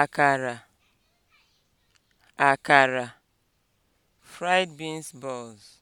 akara akara (fried beans balls)